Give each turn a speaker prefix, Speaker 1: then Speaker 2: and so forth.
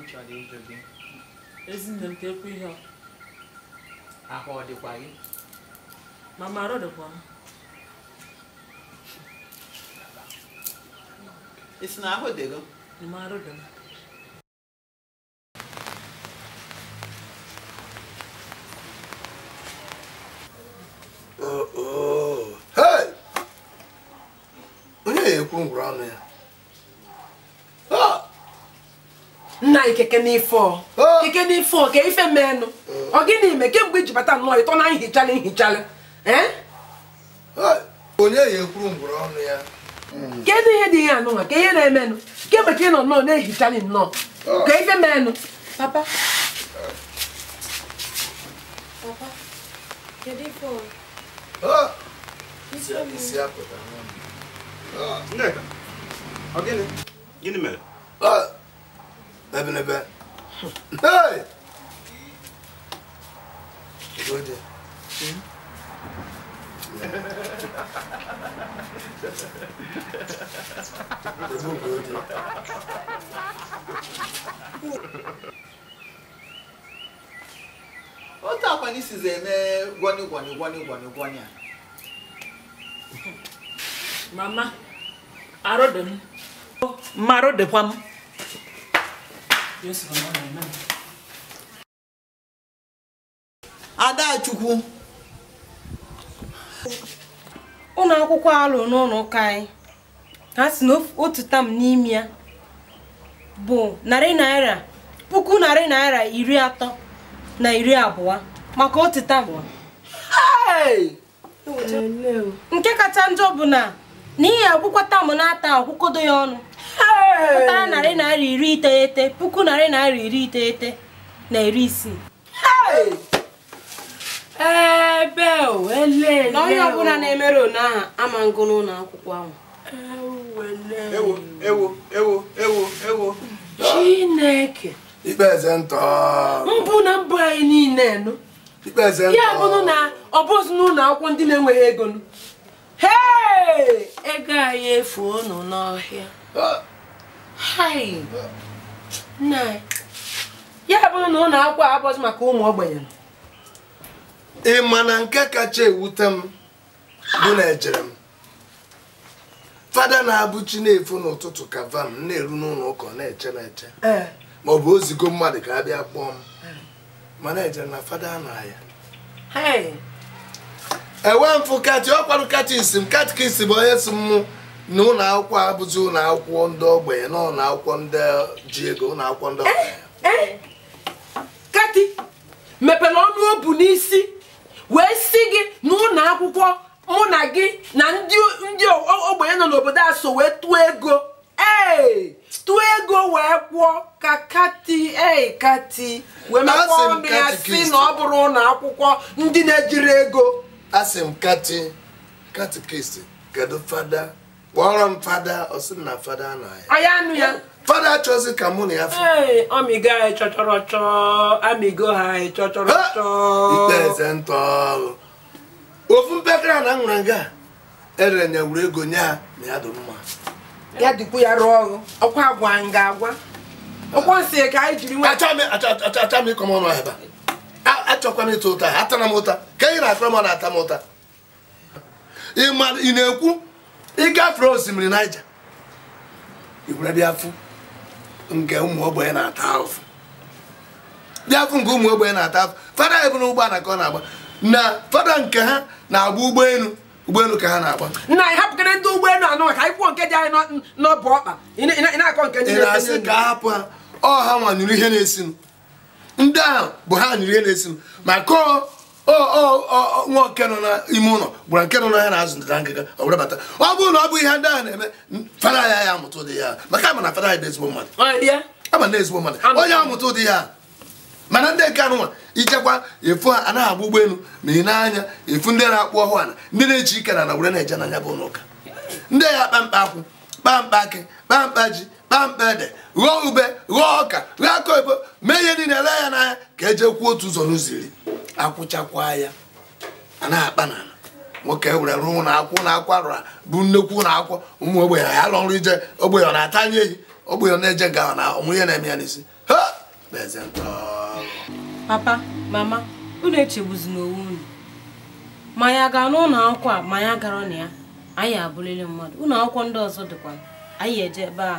Speaker 1: m chọrọ ịjụ gị ezinne m tekwu ihe ahụ ọ dịkwa gị mama arụ dịkwa m isi na ahụ dịgo ma arụ dị m
Speaker 2: oh, oh.
Speaker 1: onye na-ekwu ngwụrụ ọnụ ya nna anyị keke n'ife keke n'ife ka ife meenụ ọ gịnị ime kemgbe iji bata nnọọ ịtọ na nhichalị nhichalị onye ya
Speaker 2: ya hmm.
Speaker 1: ihe dị ihe anụnwa ka ihe na-emenụ kemgbe ka ị nọ nnọọ na ehichali nnọọ ka ife meenụ papa papa
Speaker 2: ọ gịnị mere ebelebe otu akwa n'isi ze eme gwani gwani gwani gwani a
Speaker 1: mama arodem marodekwa m Adachukwu ụlọ akwụkwọ alụ n'ụlọ ụka anyị ha si na otu tam n'ime ya bụ narị naira puku narị naira iri atọ na iri abụọ maka otu tam nke kacha njọ bụ na n'ihi akwụkwọ tam na-ata akwụkodo ya ọnụ pụtara narị naira iri iteghete puku narị naira iri iteghete na iri isii ebe na onye ọbụla na-emere one ahụ ama ngụ n'ụlọ akwụkwọ ahụ ewo ewo ewo ewo ewo chineke ikpeze ntọ mbụ na mbụ anyị niile nụ ya bụrụ na ọ bụzi n'ụlọ akwụkwọ ndị na-enweghị ego nụ ego anyị efuo nụ n'ọhịa ah! ya bụrụ na ụlọ akwụkwọ abụghị maka ụmụ ogbenye ị ma na nke kacha ewute m bụ na ejere m
Speaker 2: fada na-abụ chi na-efu n'ụtụtụ ka vam na-eru n'ụlọ ụka na-eche na-eche e. ma ọ bụ ozigo mmadụ ka a bịa kpọọ m e. mana ejere na fada na-aya enwe m kati ọ kwarụ katis m isi bụ onye si mmụ na ụlọ akwụkwọ abụzi ụlọ akwụkwọ ndị ogbenye na ụlọ akwụkwọ ndị ji ego ụlọ akwụkwọ ndị eh,
Speaker 1: ogbenye eh. kati mepere ọnụ obu n'isi wee si gị na ụlọ akwụkwọ mụ na gị na ndị ogbenye nọ n'obodo a so wee tụọ ego ee eh, tụọ ego wee kwụọ ka kati ee kati wee mekpọọ ndị ya si na ọ bụrụ ụlọ akwụkwọ
Speaker 2: ndị na-ejiri ego asị m kati kati katikist kedu fada kpọrọ m fada ọ sị na fada
Speaker 1: anụ ya. fada achọzi ka mụ na ya fụ ọmịgo anyị chọchọrọ chọọ amịgo ha anyị chọchọrọ chọọ ikpe eze ntọ ofu mpekere na nwere nga erere nya wuru ego
Speaker 2: nye ha na ya dị mma
Speaker 1: ya dịkwu ya rụọ ọrụ ọkwa agwa nga agwa ọkwa nsị ka anyị jiri nwe achọ m ịkọ m ọnụ ebe achọkwa m ịta ụta
Speaker 2: atara m ụta ka ị na-akọrọ m na-ata m ụta ị na-ekwu ịgafere osimiri naija iwere bịafụ nke ụmụ ogbenye na-ata ahụfụ bịafụ nke ụmụ ogbenye na-ata ahụfụ fada ebu na ụgbọala ka ọ na-agba na fada nke ha na-agba ụgbọelu ụgbọelu ka ha na-agba
Speaker 1: nna ị hapụkere ndị ụgbọelu anọ maka ịkwụọ nke dị anyị n'ọbụ ọkpa ị na-akọ nke ndị na-asị ka
Speaker 2: hapụ ha ọ ha nwanyụrụ ihe na-esinụ ndị ahụ bụ ha nyụrụ ihe na-esinụ maka nwa nke nọ n'ime ụlọ gwara nke nọ n'ahịa na-azụ ndịda ngịga ọ bata ọ bụrụ na ọ bụ ihe ndị ahụ na-eme fada ya ya amụta ụdị ya maka ama na fada ya dị ezigbo mmadụ ama na ezigbo mmadụ onye amụta ụdị ya mana ndị nke anụ ichekwa efu ha anaghị agba ụgbọelu ma ị na efu ndị na-akpụ ọhụ ala ndị na-eji ike na na were na-eje n'anya bụ n'ụka ndị ya kpa mkpa akwụ kpa mkpa akị kpa ji ede ghọọ ube ghọọ ọka ghọọ aka ebo mee ihe niile ele ya n'anya ka eje kwuo otu ụzọ n'ụzọ iri akwụchakwa ya a na-akpa na nwoke were rụọ na akwụ na akwa rụra bụ nnekwu na akwụ ụmụ ogbenye ya lọ nrụ ije ogbenye ọ na-ata anya ehi ogbenye na-eje ga ahụ na ọmụ ihe na-eme ya n'isi ha na
Speaker 1: papa mama unu echegbuzina onwe unu ma ya gaa n'ụlọ akwụkwọ a ma ya gara na ya anyị abụrịrị mmadụ ụlọ akwụkwọ ndị ọzọ dịkwa anyị eje ebe a